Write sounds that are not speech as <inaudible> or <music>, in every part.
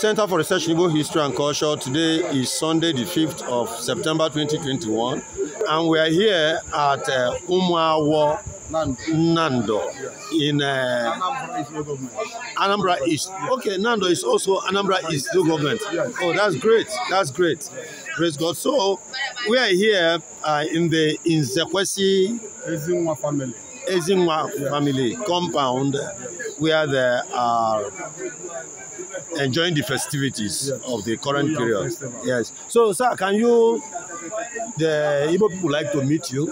Center for Research in Igbo History and Culture. Today is Sunday, the 5th of September 2021, and we are here at uh, Umwawo Nando in uh, Anambra East. Okay, Nando is also Anambra East local government. Oh, that's great. That's great. Praise God. So we are here uh, in the Inzekwesi Ezinwa family. Ezinwa family compound where there are enjoying the festivities of the current oh, period. Yes. So, sir, can you, the Igbo people like to meet you?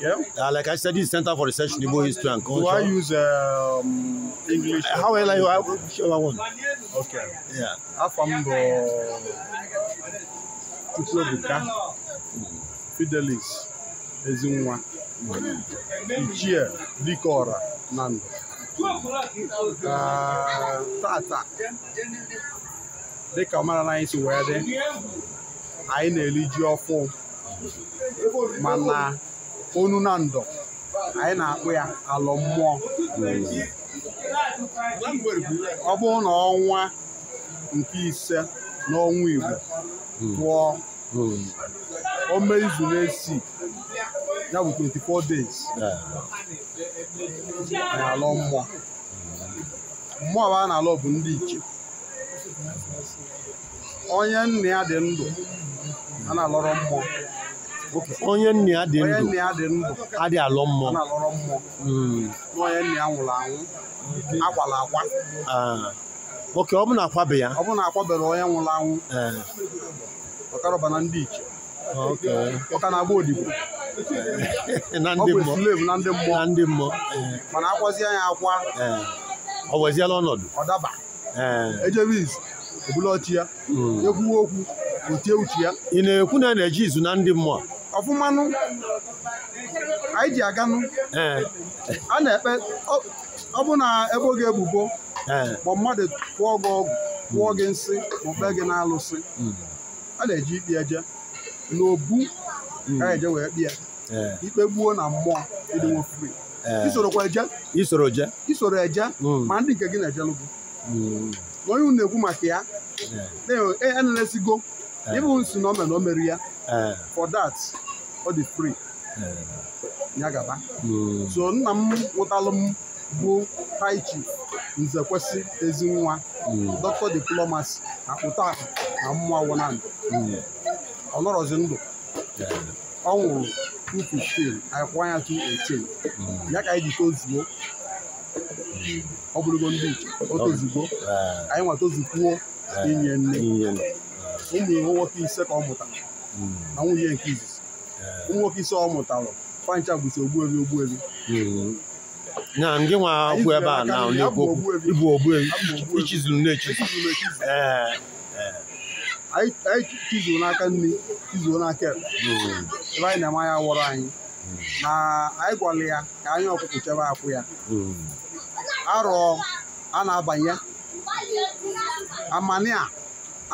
Yeah. Uh, like I said, this Center for Research in Igbo History and Culture. Do I use um, English? Uh, how well I you? I want? Okay. Yeah. Afambo Chukwuebuka Fidelis Ezinwa Ichie Dikora Nando. tata dịka ọmarala anyị si wee dị anyị na-eri ji ọfụ mana onu na ndọ anyị na-akpụ ya alọ mmụọ ọ bụrụ na ọnwa nke ise n'ọnwa Igbo pụọ o mee izu na-esi ya bụ 24 days na-alọ mmụọ mmụọ bụ a na-alọ bụ ndị iche onye nna ya dị ndụ a na-alọrọ mmụọ onye nna ya dị ndụ adị alọ mmụọ na hmm. onye nna ya nwụrụ anwụ akwala akwa ah. oke ọ bụ na ya ọ bụ na akwabere onye nwụrụ anwụ eh. ọkarọba na ndị iche ọka na-agba odibo na ndị mmụọ na ndị mmụọ. mana akwazie ya akwa ọ weziela ọnọdụ ọ daba ejebe e izu ebula ọchị ya hmm. ekwuwe okwu utie uche ya ị na-ekwu na e na-eji izu na ndị mmụọ ọfụmanụ anyị ji aganụ a na-ekpe ọ bụ na ebo gị ebubo ma mmadụ kwụọ gị ọgwụ kwụọ gị nsị ma kpee gị n'alụsị hmm. a na-eji ikpe eje n'obu hmm. ka eje wee kpịa Eh. ikpe gbuo na mmụọ ịdịnwe free isorokwa eh. eje isoro eje isoro eje hmm. ma ndị nke gị na-ejelụgo hmm. onye unu na-ekwu maka ya enelesigo eh. e, e, e, ịbụ nsi na omena omeri ya for that ọ dị free ya gaba hmm. so nna m nwụtalụ m bụ taichi chief nze kwesị ezi nwa dọkịta diplomasi akpụta akụ na mmụọ wụnandụ ọ nọrọzi ndụ ọ nwụrụ 215 ah. anyị kwụọ ya 218 ya ka anyị ji tozuo ọ bụrụgo ndị iche o tozugo anyị ah. nwa tozukwuo inye nne ụmụ iwu nwoke ise ka ọ mụtara hmm. na nwunye nke izizi ụmụ ah. nwoke ise ọ mụtara fancha bụzi ogbuebi ogbuebi hmm. na ndị nwa akwụ ebe a na-egbu ogbuebi ichizuru na-echizu anyị tizuo n'aka nri tizuo n'aka hmm. ebe anyị na-eme anya wọrọ anyị hmm. na anyị gwara ya ka anyị ọkụkụ chebe akwụ ya hmm. arọ a na-abanye amania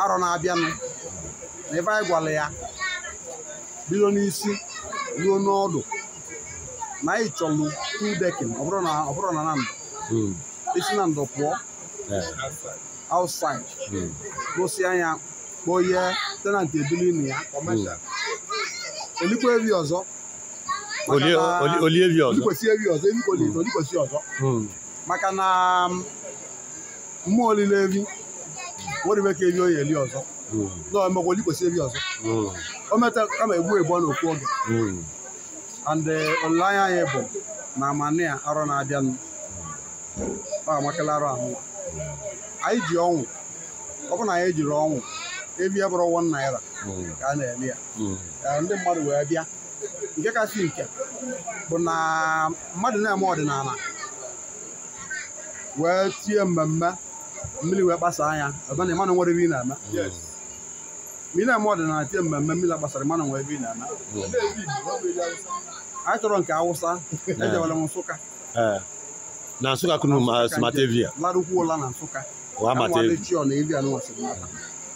arọ na-abịanụ na ebe anyị gwara ya bido n'isi ruo n'ọdụ na anyị chọlụ tu dekin ọ na na ndụ isi na ndụ pụọ outside gosi anya kpọọ ihe tenant ebili na ya olikwevi ọzọ olievi ọzọ evi ọzọ maka na mmụọ olile evi nwere ka evi onye eli ọzọ hmm. na omekwa olikwesị evi ọzọ hmm. o metara kama egbu egbu n'okwu oge hmm. and eh, olileanya anyị bụ na amani a arọ na-abịanụ ọ amakala arụ ahụ anyị ji ọnwụ ọ bụ na anyị jiri ọnwụ ebi bụrụ wọn naira ka hmm. hmm. a na-eme ya ndị mmadụ wee bịa nke kasị nke bụ na mmadụ na-eme ọdịnala wee tie mmemme mmiri wee gbasa anya ebe na mmadụ nwere ebe ị na-eme ma ị na-eme ọdịnala tie mmemme mmiri gbasara mmadụ nwere ebe ị na-eme anyị chọrọ nke awụsa ejewere m hmm. nsụka na nsụka kunu simatevia larụkwuola na nsụka chi ọ na evi anụnwa sirimata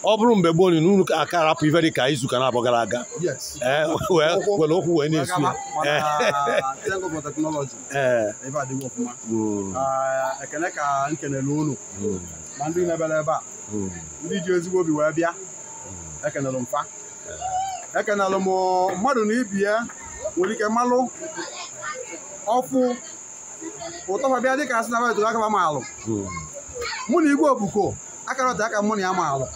ọ bụrụ mgbe gboo na n'ụlọ aka arapụ ife dị ka izu ka na abọ gara aga eh, were okwu wee na-esu eh. <laughs> eh. hmm. ah, ekene hmm. hmm. ji ezigbo obi wee bịa ekenelụ mfa ekenelụ m na ya nwere ike dị asị obuko akara ọta aka mụ na ya ma alụ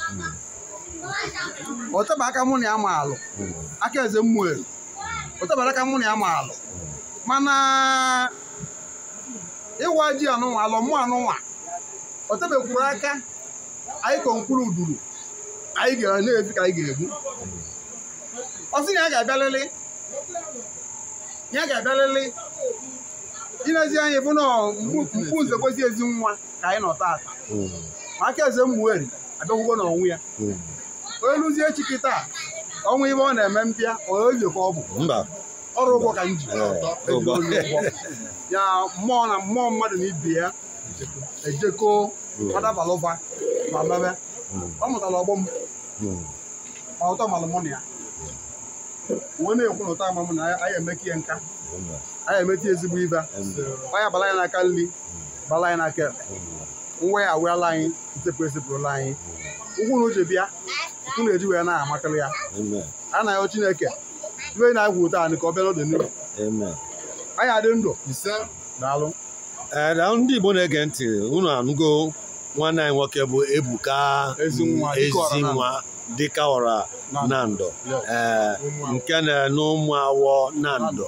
ọtaba aka mụ na ya ma alụ aka eze mmụọ elu ọtabara aka mụ na ya ma alụ mana ịwa ji anụnwa alụ mụ anụnwa ọtabekwuru aka anyị kọ uduru anyị ga na-efi ka anyị ga-egbu ọsị na ya ga-abịalịlị ya ga-abịalịlị ịnezi anya bụ na mkpu nze kwezi ezi nwa ka anyị nọ taata aka eze mmụeri abịakwụkwọ na ọnwụ ya hmm. onye lụzie echi kịta ọnwa ibe ọ na-eme mbịa onye ka ọ bụ ọrụ ụgwọ ka m ji eh, ya mmụọ na mmụọ mmadụ na ibe ya ejekọ hmm. adabalụba ma mebe hmm. ọ mụtara ọgbọ m ma ọtọ malụmụ na ya uwe na-ekwu na ụta ama m na anyị emeka ihe nka anyị emeta ezigbo ibe anyị bala ya n'aka nri bala ya n'aka ekpe mweghawela anyị nsepụ esepụrụla anyị ụkwụ na uche bịa ụkwụ na-eji wee na-amakarị ya a na-ayọ Chineke ibe na-agwụ taa anyị ka ọ bịa n'oge n'ihu anyị adị ndụ ise daalụ ndị Igbo na-ege ntị unu anụgo nwanne anyị nwoke bụ Ebuka Ezinwa dịka ọra na nando nke na-enu ụmụ awọ nando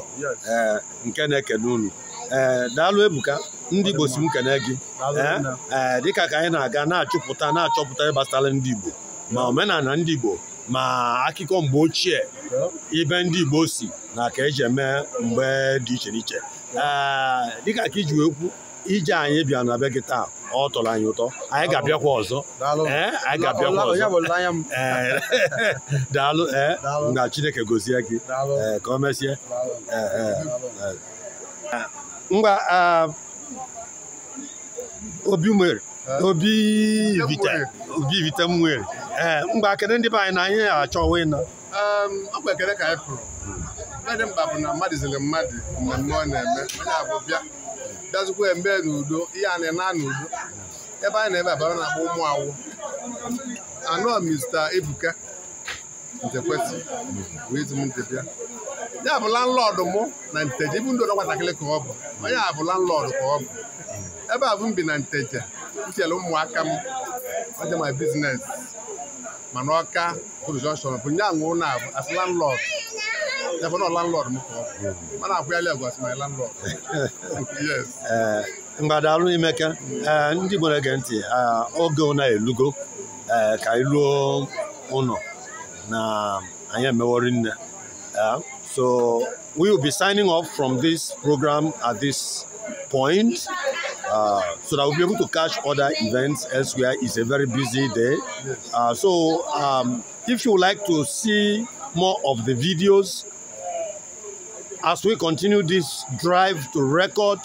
nke na-ekene unu Eh, daalụ ebuka ndị Igbo si m kene gị ee eh, eh, dịka ka anyị na-aga na-achụpụta na-achọpụta ịgbasara ndị Igbo ma omenala ndị Igbo ma akụkọ mgbe ochie ibe ndị Igbo si na ka eji eme mgbe dị iche n'iche ee dịka ka iji wee ije anyị bịa na be gị taa ọ tọrọ anyị ụtọ anyị ga-abịakwa ọzọ daalụ na <laughs> Chineke gozie gị ka o mesie ngwa obi nwere obi vita m nwere ee mgba kedu ndị be anyị na anyị achọ ịnọ ọkwa um, ekele ka anyị kwuru ihe dị mkpa bụ na mmadụ ziri mmadụ mmemme ọ na-eme onye abụ bịa bịazụkwa embe n'udo ihe a na-ena n'udo ebe anyị na-eme abara na-akpọ ụmụ awụ anọ mista ebuka njekwesị bụ izum ndị bịa ya bụ landlọdụ mụ na nteje ibu ndị nwatakịrị ka ọ bụ onye a bụ ka ọ bụ ebe a bụ m bi na nteje nchere ụmụaka m aja ma biznes mana ọka prụjọnshọn bụ nye anwụ na abụ as landlọdụ ebe m ka ọ bụ mana <laughs> agwa ndị na-ege ntị oge elugo ka anyị ụlọ na anyị nne So we will be signing off from this program at this point uh, so that we'll be able to catch other events elsewhere. It's a very busy day. Uh, so um, if you would like to see more of the videos as we continue this drive to record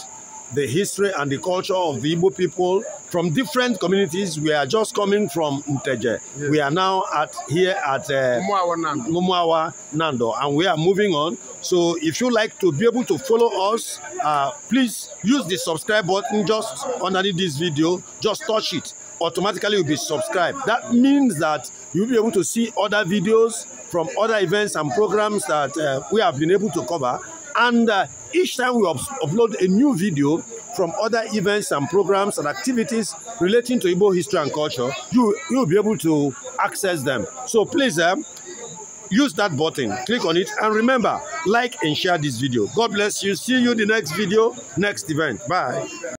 the history and the culture of the Igbo people from different communities. We are just coming from Nteje. Yes. We are now at here at uh, Mumuawa, Nando. Mumuawa Nando, and we are moving on. So if you like to be able to follow us, uh, please use the subscribe button just underneath this video. Just touch it. Automatically, you'll be subscribed. That means that you'll be able to see other videos from other events and programs that uh, we have been able to cover. And uh, each time we upload a new video, from other events and programs and activities relating to Igbo history and culture, you, you'll be able to access them. So please um, use that button, click on it, and remember, like and share this video. God bless you. See you the next video, next event. Bye.